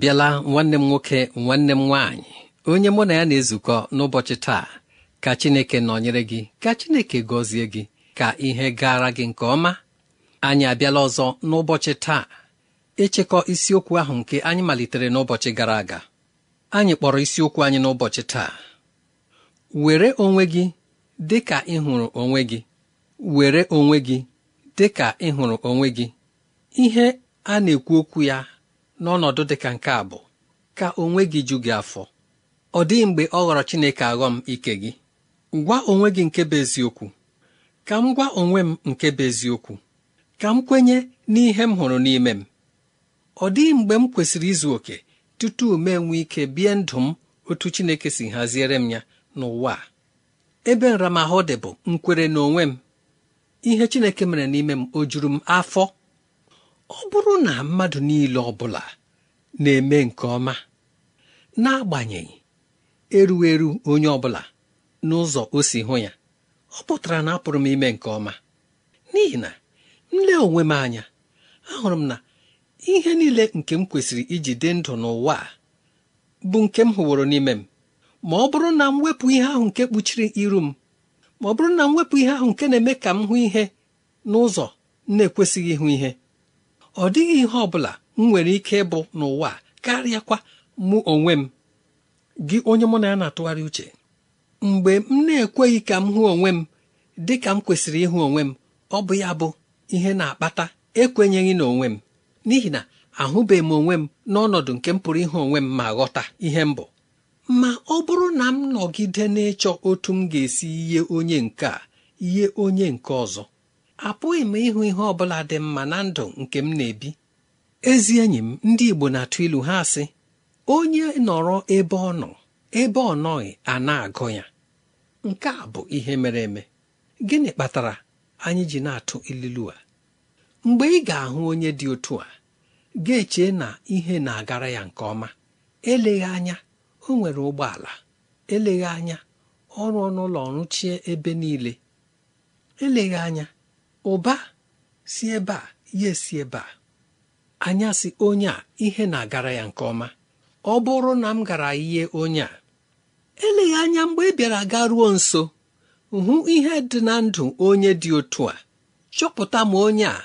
bịala nwanne m nwoke nwanne m nwaanyị onye mụ na ya na-ezukọ n'ụbọchị taa ka Chineke nọnyere gị ka Chineke gọzie gị ka ihe gara gị nke ọma anyị abịala ọzọ n'ụbọchị taa ịchịkọ isiokwu ahụ nke anyị malitere n'ụbọchị gara aga anyị kpọrọ isiokwu anyị n'ụbọchị taa were onwe gị dị ka onwe gị were onwe gị dị ka ịhụrụ onwe gị ihe a na-ekwu okwu ya n'ọnọdụ dị ka nke a bụ ka onwe gị ju gị afọ ọ dịghị mgbe ọ ghọrọ Chineke aghọm ike gị gwa onwe gị nke bụ eziokwu ka m gwa onwe m nke bụ eziokwu ka m kwenye n'ihe m hụrụ n'ime m ọ dịghị mgbe m kwesịrị izu oke tutu m nwee ike bie ndụ m otu Chineke si haziere m ya n'ụwa a ebe nramahụ dị bụ nkwere n'onwe m ihe Chineke mere n'ime m o juru m afọ ọ bụrụ na mmadụ niile ọ bụla na-eme nke ọma n'agbanyeghị erughị eru onye ọ bụla n'ụzọ o si hụ ya ọ pụtara na apụrụ m ime nke ọma n'ihi na nle onwe m anya ahụrụ m na ihe niile nke m kwesịrị iji dị ndụ n'ụwa a bụ nke m hụworo n'ime m ma ọ bụrụ na m wepụ ihe ahụ nke kpuchiri iru m ma ọ bụrụ na m wepụ ihe ahụ nke na-eme ka m hụ ihe n'ụzọ na-ekwesịghị ịhụ ihe ọ dịghị ihe ọ bụla m nwere ike ịbụ n'ụwa karịakwa mụ onwe m gị onye mụ na ya na-atụgharị uche mgbe m na-ekweghị ka m hụ onwe m dị ka m kwesịrị ịhụ onwe m ọ bụ ya bụ ihe na-akpata ekwenyeghị na onwe m n'ihi na ahụbeghị m onwe m n'ọnọdụ nke m pụrụ ịhụ onwe m ma ghọta ihe m bụ ma ọ bụrụ na m nọgide n'ịchọ otu m ga-esi ihe onye nke a ihe onye nke ọzọ apụghị m ịhụ ihe ọ bụla dị mma na ndụ nke m na-ebi ezi enyi m ndị Igbo na-atụ ilu ha sị onye nọrọ ebe ọ nọ ebe ọ nọghị a na-agụ ya nke a bụ ihe mere eme gịnị kpatara anyị ji na-atụ ilu a mgbe ị ga-ahụ onye dị otu a ga-eche na ihe na-agara ya nke ọma eleghị anya o nwere ụgbọala eleghị anya ọrụ ọnụụlọ ọrụ chie ebe niile eleghị anya ụba si ebe a ya esi ebe a anya si onye a ihe na-agara ya nke ọma ọ bụrụ na m gara ihe onye a eleghị anya mgbe ị bịara ruo nso hụ ihe dị na ndụ onye dị otu a chọpụta m onye a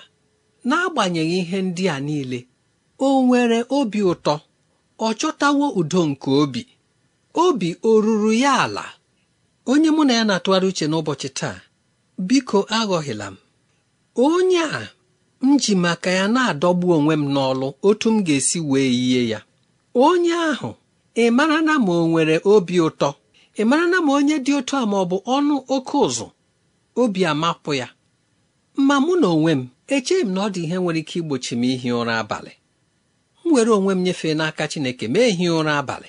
n'agbanyeghị ihe ndị a niile o nwere obi ụtọ ọ chọtawo udo nke obi obi o ruru ya ala onye mụ na ya na-atụgharị uche n'ụbọchị taa biko aghọghịla m onye a m ji maka ya na-adọgbu onwe m n'ọlụ otu m ga-esi wee yie ya onye ahụ ị mara na ma o nwere obi ụtọ ị mara na ma onye dị otu a ma ọ bụ ọnụ oke ụzụ obi amapụ ya ma mụ na onwe m echeghị m na ọ dị ihe nwere ike igbochi m ihi ụra abalị m were onwe m nyefee n'aka Chineke mee ehi ụra abalị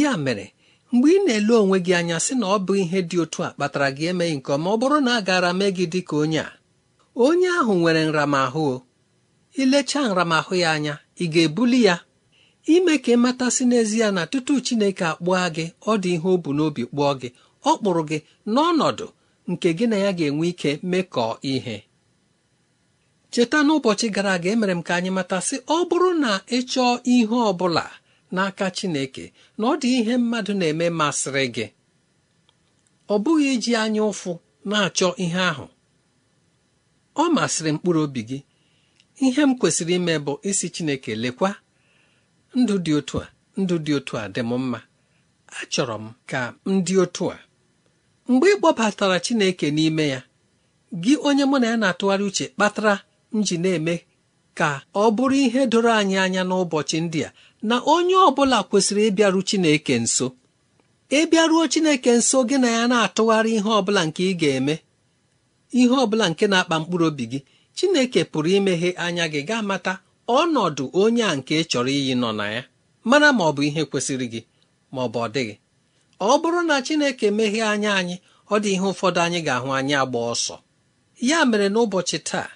ya mere mgbe ị na-ele onwe gị anya sị na ọ bụ ihe dị otu a kpatara gị emeghị nke ọma ọ bụrụ na a gaara mee gị dị ka onye a onye ahụ nwere nramahụ ilechaa nramahụ ya anya ị ga-ebuli ya ime ka ị matasị n'ezie na tutu Chineke akpụọ gị ọ dị ihe o bu n'obi kpụọ gị ọ kpụrụ gị n'ọnọdụ nke gị na ya ga-enwe ike mekọọ ihe cheta n'ụbọchị gara aga emere m ka anyị matasị ọ bụrụ na ị chọọ ihe ọ bụla n'aka Chineke na ọ dị ihe mmadụ na-eme masịrị gị ọ bụghị iji anya ụfụ na-achọ ihe ahụ ọ masịrị mkpụrụ obi gị ihe m kwesịrị ime bụ isi Chineke lekwa ndụ dị otu a ndụ dị otu a dị m mma achọrọ m ka m dị otu a mgbe ị kpọbatara Chineke n'ime ya gị onye mụ na ya na-atụgharị uche kpatara m ji na-eme ka ọ bụrụ ihe doro anyị anya n'ụbọchị ndị a na onye ọ bụla kwesịrị ịbịaru Chineke nso ịbịaruo Chineke nso gị na ya na-atụgharị ihe ọ bụla nke ị ga-eme ihe ọ bụla nke na-akpa mkpụrụ obi gị chineke pụrụ imeghe anya gị gaa mata ọnọdụ onye a nke chọrọ iyi nọ na ya mara ma ọ bụ ihe kwesịrị gị ma ọ bụ ọ dịghị ọ bụrụ na chineke meghee anya anyị ọ dị ihe ụfọdụ anyị ga-ahụ anyị agba ọsọ ya mere n'ụbọchị taa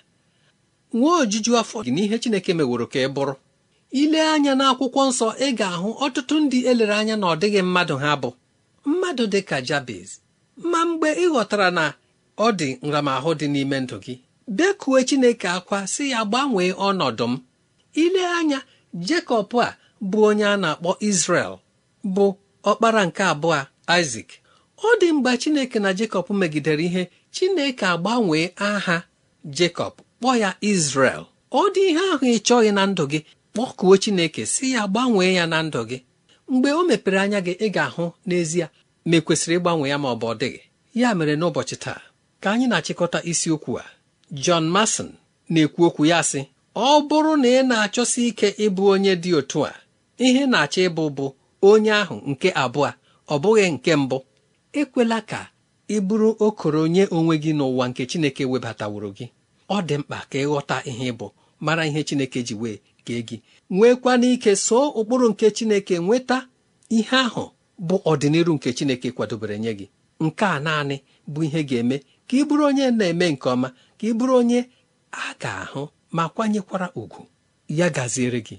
nwee ojuju afọ gị n'ihe chineke meworo ka ị bụrụ ile anya n'akwụkwọ nsọ ị ga-ahụ ọtụtụ ndị elere anya na ọ dịghị mmadụ ha bụ mmadụ dị ka jabez ma mgbe ị ghọtara na ọ dị nramahụ dị n'ime ndụ gị bekue chineke akwa si ya gbanwee ọnọdụ m ile anya jekọb a bụ onye a na-akpọ isrel bụ ọkpara nke abụọ isak ọ dị mgbe chineke na jekọb megidere ihe chineke agbanwee aha jekọb kpọọ ya isrel ọ dị ihe ahụ ị chọghị na ndụ gị kpọkuo chineke si ya gbanwee ya na ndụ gị mgbe o mepere anya gị ị ga-ahụ n'ezie ma e ịgbanwe ya ma ọ bụ ọ dịghị ya mere n'ụbọchị taa ka anyị na-achịkọta isiokwu a John Mason na-ekwu okwu ya sị ọ bụrụ na ị na-achọsi ike ịbụ onye dị otu a ihe na-achọ ịbụ bụ onye ahụ nke abụọ ọ bụghị nke mbụ ekwela ka ị bụrụ okoro nye onwe gị n'ụwa nke Chineke webataworo gị ọ dị mkpa ka ịghọta ihe ịbụ mara ihe Chineke ji wee kee gị nwekwana ike soo ụkpụrụ nke Chineke nweta ihe ahụ bụ ọdịnihu nke Chineke kwadobere nye gị nke a naanị bụ ihe ga-eme ka ị bụrụ onye na-eme nke ọma ka ị bụrụ onye a ga-ahụ ma kwanyekwara ugwu ya gaziere gị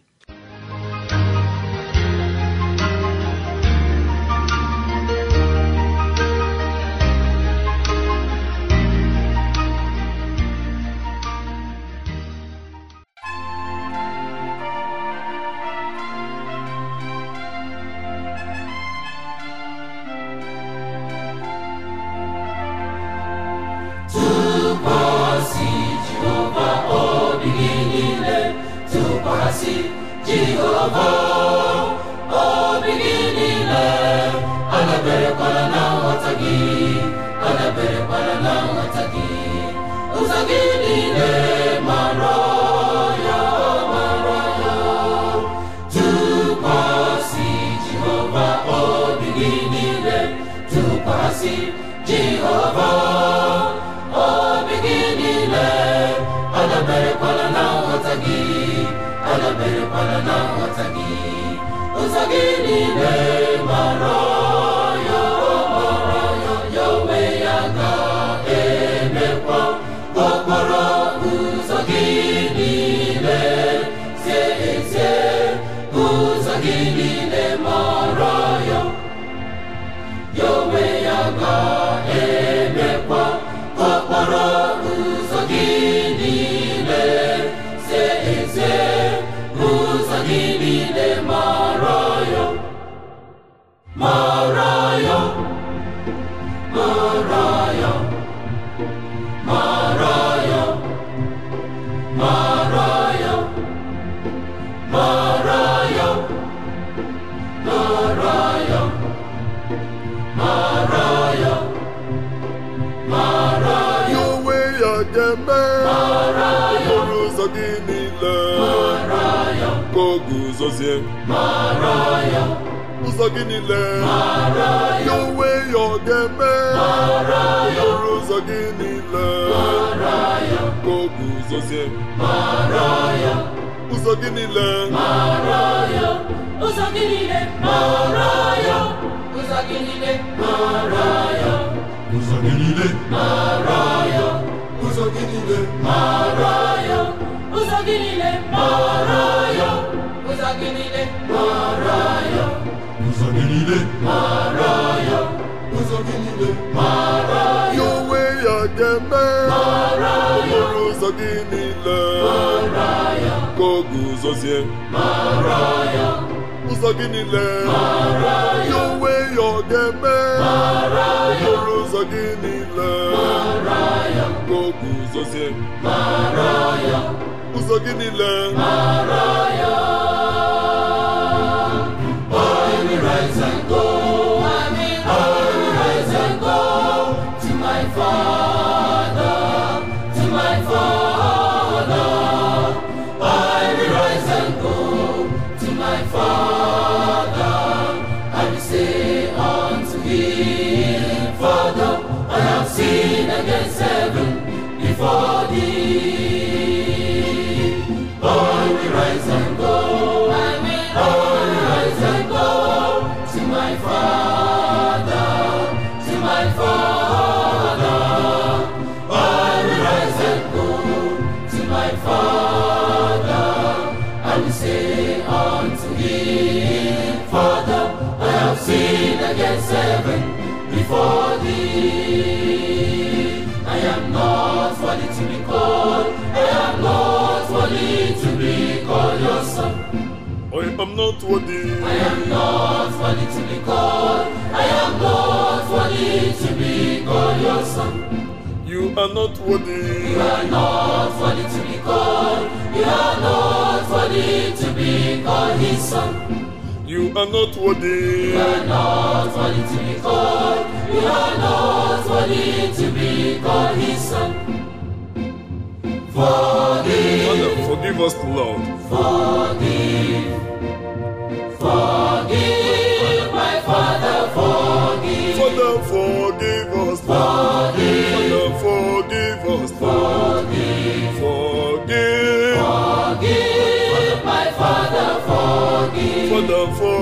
guzozie ụzọ gị niile ya onwe ya ọ ga-eme ọrụ ụzọ gị niile ka o guzozie ụzọ gị niile ụzọ gị niile ụzọ gị niile ụzọ gị niile ụzọ gị niile ụzọ gị niile ụzọ gị niile mara ya ụzọ gị niile mara ya ụzọ gị niile mara ya onwe ya ga-eme mara ya ụzọ gị niile mara ya ka ọ guzozie mara ya ụzọ gị niile mara ya onwe ya ọ ga-eme ya ụzọ gị niile mara ya ka ọ guzozie ya ụzọ gị niile mara ya worthy. I am not worthy to be called. I am not worthy to be called your son. You are not worthy. You are not worthy to be called. You are not worthy to be called his son. You are not worthy. You are not worthy to be called. You are not worthy to be called His son. Forgive. Father, forgive us, Lord. Forgive. for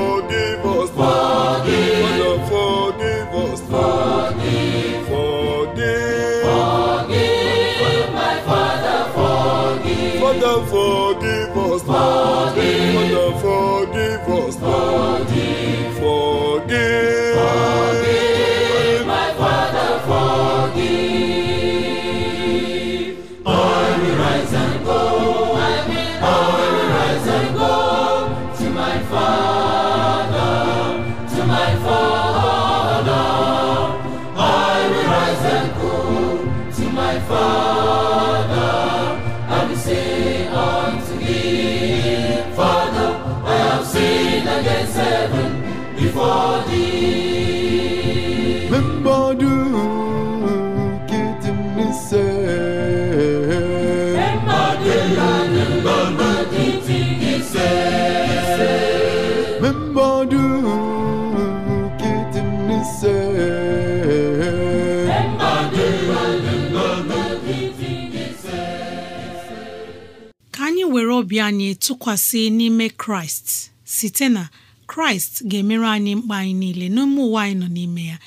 anyị tụkwasị n'ime kraịst site na kraịst ga-emere anyị mkpa anyị niile n'ime ụwa anyị nọ n'ime ya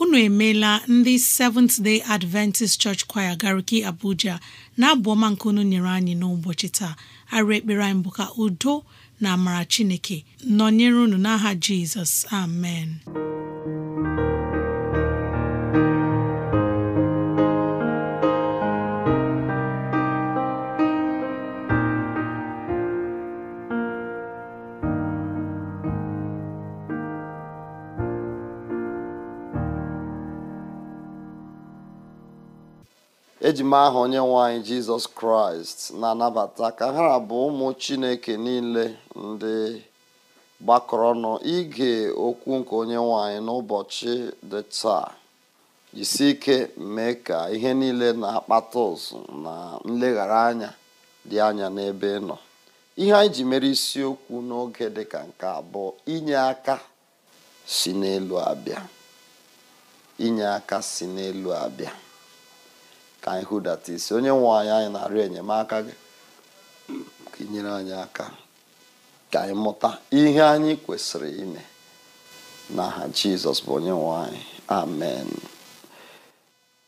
unu emeela ndị Seventh Day Adventist Church Choir Gariki Abuja na-abụ ọma nke unu nyere anyị n'ụbọchị taa arụ ekpere anyị bụ ka udo na amara Chineke nọnyere unu n'aha Jizọs amen ejima ahụ onye nwanyị jizọs kraịst na-anabata ka ha abụ ụmụ chineke niile ndị gbakọrọ ọnụ ige okwu nke onye nwanyị n'ụbọchị dị taa jisi ike mee ka ihe niile na-akpata ụzụ na nleghara anya dị anya n'ebe nọ ihe anyị ji mere isiokwu n'oge dị ka nke abụọ inye aka si n'elu abịa inye aka si n'elu abịa ka anyị hụdata isi onye nwe anyị anyị na-arịọ enyemaka gị ka ị nyere anyị aka ka anyị mụta ihe anyị kwesịrị ime n'aha jizọs bụ onye nwe anyị amen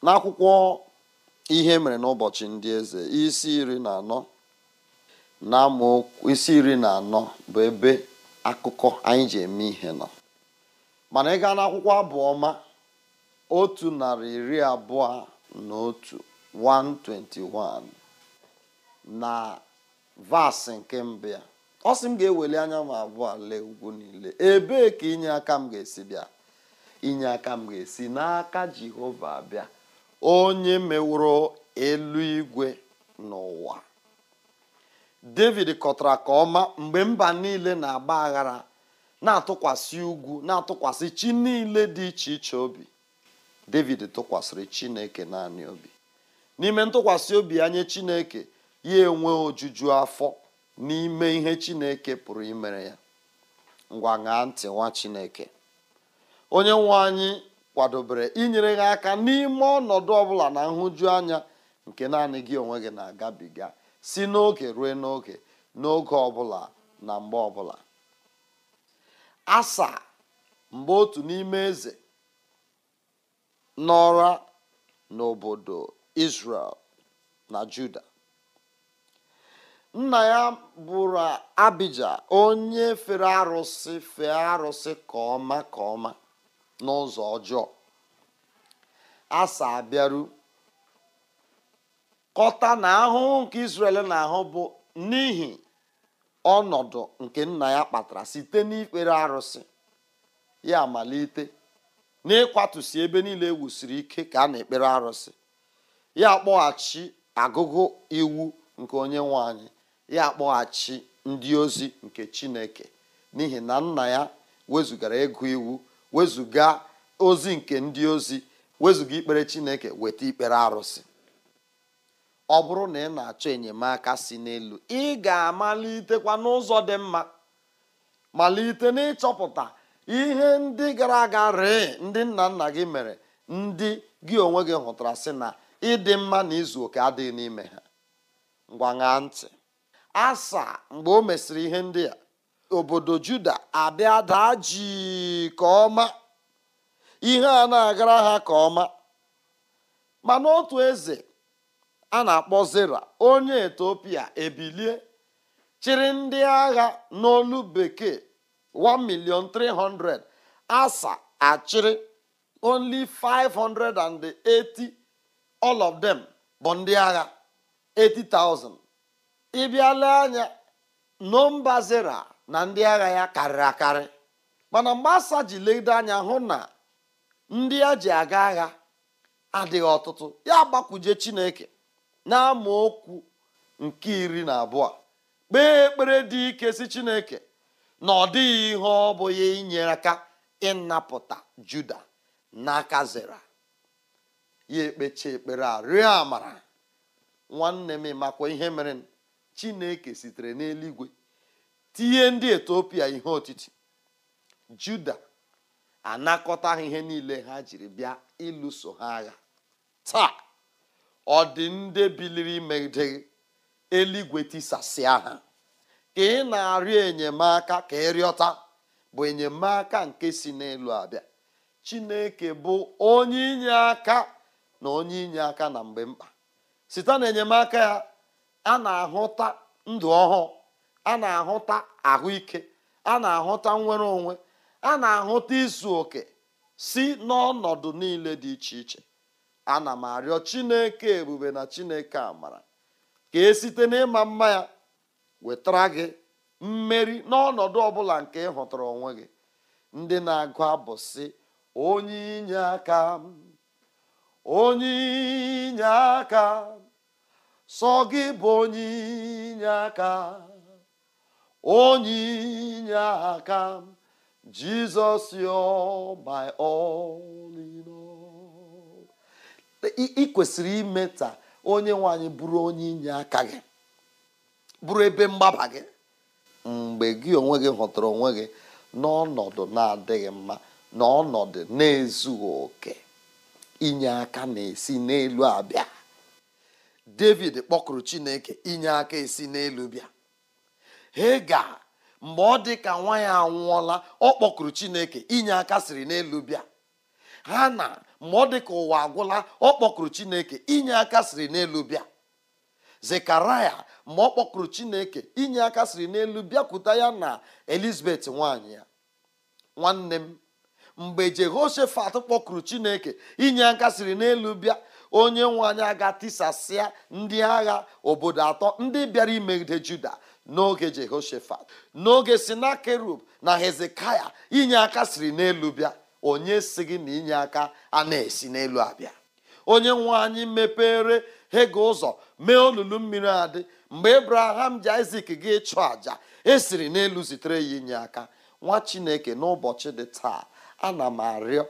n'akwụkwọ ihe mere n'ụbọchị ndị eze isi iri na anọ na amaokwu isi iri na anọ bụ ebe akụkọ anyị ji eme ihe nọ mana ị gaa n'akwụkwọ abụ ọma otu narị iri abụọ n'otu 121 na vaasị nke mbụ ya ọ sị m ga-eweli anya m abụọ lee ugwu niile ebee ka inye aka m ga-esi bịa inye aka m ga-esi n'aka Jehova bịa onye meworo eluigwe n'ụwa David kọtara ka ọma mgbe mba niile na-agba aghara na-atụkwasị ugwu na-atụkwasị chi niile dị iche iche obi david tụkwasịrị chineke naanị obi n'ime ntụkwasị obi anya chineke ya enwe ojuju afọ n'ime ihe chineke pụrụ imere ya ngwa ṅaa ntị nwa chineke onye nwe anyị kwadobere inyere gị aka n'ime ọnọdụ ọbụla na nhụju anya nke naanị gị onwe gị na-agabiga si n'oge ruo n'oge n'oge ọbụla na mgbe ọbụla asa mgbe otu n'ime eze n'ọra n'obodo israel na Juda nna ya bụrụ Abija onye fere arụsị fee arụsị ka ọma ka ọma n'ụzọ ọjọọ asa abịaru kọta na ahụhụ nke israel na-ahụ bụ n'ihi ọnọdụ nke nna ya kpatara site n'ikpere arụsị ya amalite n'ịkwatụsi ebe niile e wusiri ike ka a na-ekpere arụsị ya kpọghachi agụgụ iwu nke onye nwe anyị ya kpọghachi ndị ozi nke chineke n'ihi na nna ya wezugara ịgụ iwu wezụga ozi nke ndị ozi wezụga ikpere chineke weta ikpere arụsị ọ bụrụ na ị na-achọ enyemaka si n'elu ị ga-amalitekwa n'ụzọ dị mma malite n'ịchọpụta ihe ndị gara aga ree ndị nna nna gị mere ndị gị onwe gị hụtara sị na ịdị mma na izu oke adịghị n'ime ha ngwa ṅaa ntị asa mgbe o mesịrị ihe ndị a obodo juda abịa daa ka ọma ihe a na-agara ha ka ọma mana otu eze a na-akpọ zera onye etiopia ebilie chịrị ndị agha n'olu bekee 1 million 300 Asa achịrị only 580 all of them bụ ndị agha 80,000 ịbịala anya nọmba zera na ndị agha ya karịrị akarị mana mgbe Asa ji lede anya hụ na ndị a ji aga agha adịghị ọtụtụ ya gbakwuje Chineke na okwu nke iri na abụọ kpee ekpere dị ike si Chineke na ọ dịghị ihe ọ bụghị inyere aka ịnapụta juda n'aka zera ya ekpechi ekpere a rịọ amara nwanne m makwa ihe mere chineke sitere n'eluigwe tinye ndị etiopia ihe otiti juda anakọta ha ihe niile ha jiri bịa ịlụso ha agha taa ọ dị ndị biliri megide eluigwe tisasịa ha ka ị na-arịọ enyemaka ka ị rịọta bụ enyemaka nke si n'elu abịa chineke bụ onye inye aka na onye inye aka na mgbe mkpa site na enyemaka ya a na-ahụta ndụ ọhụụ a na-ahụta ahụike a na-ahụta nnwere onwe a na-ahụta izu oke si n'ọnọdụ niile dị iche iche ana m arịọ chineke ebube na chineke amara ka e site n'ịma mma ya wetara gị mmeri n'ọnọdụ ọbụla nke ị hụtara onwe gị ndị na-agụ bụ sị onye inye aka onye inye aka sọ gị bụ onye inye aka onye inye aka jizọs yo bai ị kwesịrị ime taa onye nwanyị bụrụ onye inye aka gị bụrụ ebe mgbaba gị mgbe gị onwe gị hụtara onwe gị n'ọnọdụ na-adịghị mma n'ọnọdụ na-ezughị oke inye aka na-esi n'elu abịa david kpọkụrụ chineke inye aka esi n'elu bịa hega mgbe ọ dị ka nwa ya anwụọla ọ kpọkụrụ chineke inye aka siri n'elu bịa ha na mgbe ọ dị ka ụwa agwụla ọ kpọkụrụ chineke inye aka siri n'elu bịa zekaraya ma ọ kpọkụrụ chineke inye aka siri n'elu bịakwuta ya na elizabeth nwanyị ya nwanne m mgbe jehoshefat kpọkụrụ chineke inye aka siri n'elu bịa onye nwe anyị aga tisasịa ndị agha obodo atọ ndị bịara imegide juda n'oge jehoshefat n'oge sinakerub na hezekaya inye aka siri n'elu bịa onye si gị na inye aka a na-esi n'elu abịa onye nwe anyị mepere hega ụzọ mee olulu mmiri adị mgbe ebraham ji isak gị chụọ àja esiri n'elu zitere ya inye aka nwa chineke n'ụbọchị dị taa ana m arịọ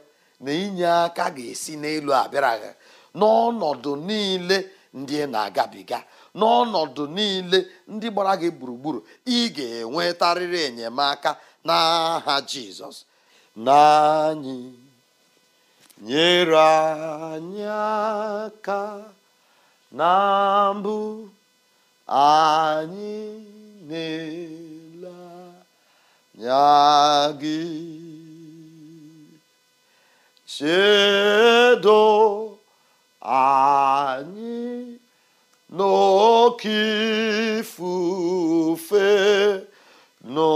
na inye aka ga-esi n'elu abịaraghị n'ọnọdụ niile ndị na-agabiga n'ọnọdụ niile ndị gbara gị gburugburu ị ga-enwetarịrị enyemaka n'aha jizọs n'anyị nyere anyị aka na mbụ anyị na-ele gị chedo anyị n'oke ifufe nọ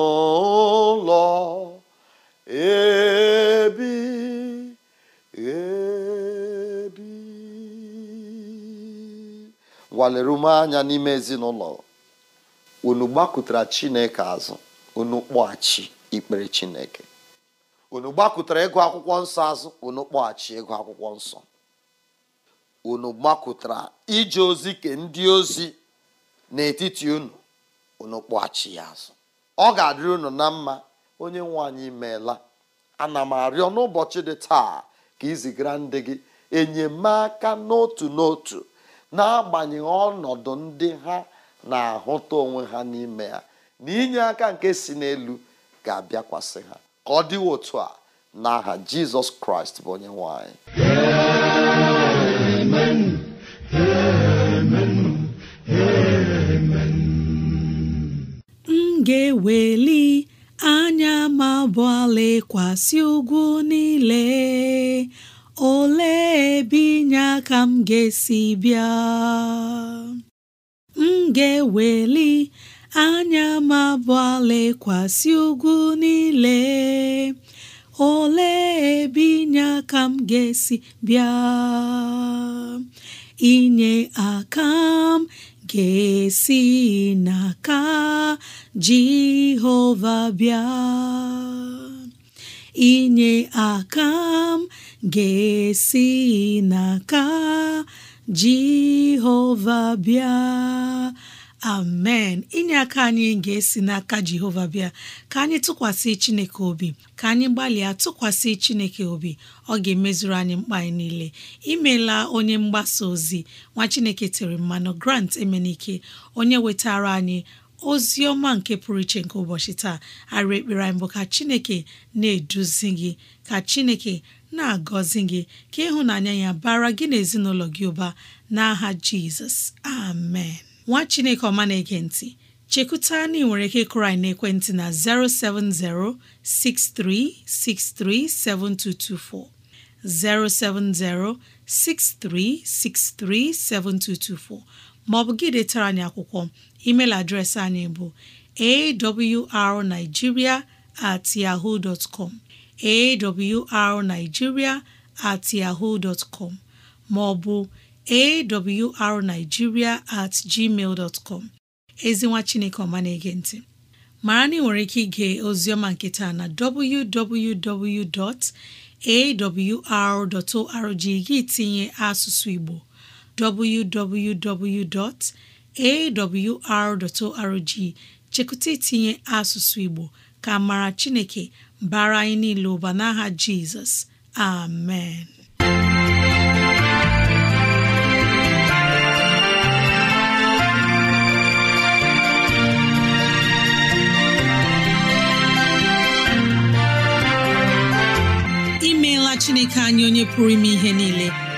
ngwa ume anya n'ime ezinụlọ unu chineke azụ unu kpọghachi ikpere chineke unu ịgụ akwụkwọ nsọ azụ unu kpọghachi ịgụ akwụkwọ nsọ unu gbakụtara ije ozi ke ndị ozi n'etiti unu unu kpọghachi ya azụ ọ ga-adịrị unu na mma onye nwe anyị imeela ana m arịọ n'ụbọchị dị taa ka izigara ndị gị enyemaka n'otu n'otu n'agbanyeghị ọnọdụ ndị ha na-ahụta onwe ha n'ime ya na inye aka nke si n'elu ga-abịakwasị ha ka ọ dịwo otu a n'aha jizọs kraịst bụ onye nwanyị m ga-eweli anya ma bụ ala ugwu niile olee ebe inye aka m ga-esi bịa m ga-eweli anya m ugwu niile olee ebe inye aka m ga-esi bịa inye aka m ga-esi n'aka Jehova bịa inye aka m ga-esi n'aka jehova bịa amen inye aka anyị ga-esi n'aka jehova bịa ka anyị tụkwasị chineke obi ka anyị gbalịa tụkwasị chineke obi ọ ga-emezuru anyị mkpa anyị niile imela onye mgbasa ozi nwa chineke tere mmanụ grant emenike onye wetara anyị ozi ọma nke pụrụ iche nke ụbọchị taa arị ekpere anyị bụ ka chineke na-eduzi gị ka chineke na-agọzi gị ka ịhụnanya ya bara gị na ezinụlọ gị ụba n'aha jizọs amen nwa chineke ọma na-ege ntị chekuta na ị nwere ike kụrụ na ekwentị na 07063637224 07063637224 Ma ọ bụ gị detara anyị akwụkwọ email adreesị anyị bụ awrnigeria at yahoo dot com awrnigeria at yahoo dot com maọbụ awrnigeria at gmail dot ezinwa chineke ọma na-ege ntị mara na ị nwere ike ige ozioma nkịta na www.awr.org gị tinye asụsụ Igbo www.awr.org chekụta itinye asụsụ Igbo ka mara Chineke bara anyị niile ụba n'aha Jizọs amen imeela Chineke anyị onye pụrụ ime ihe niile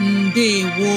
ndewo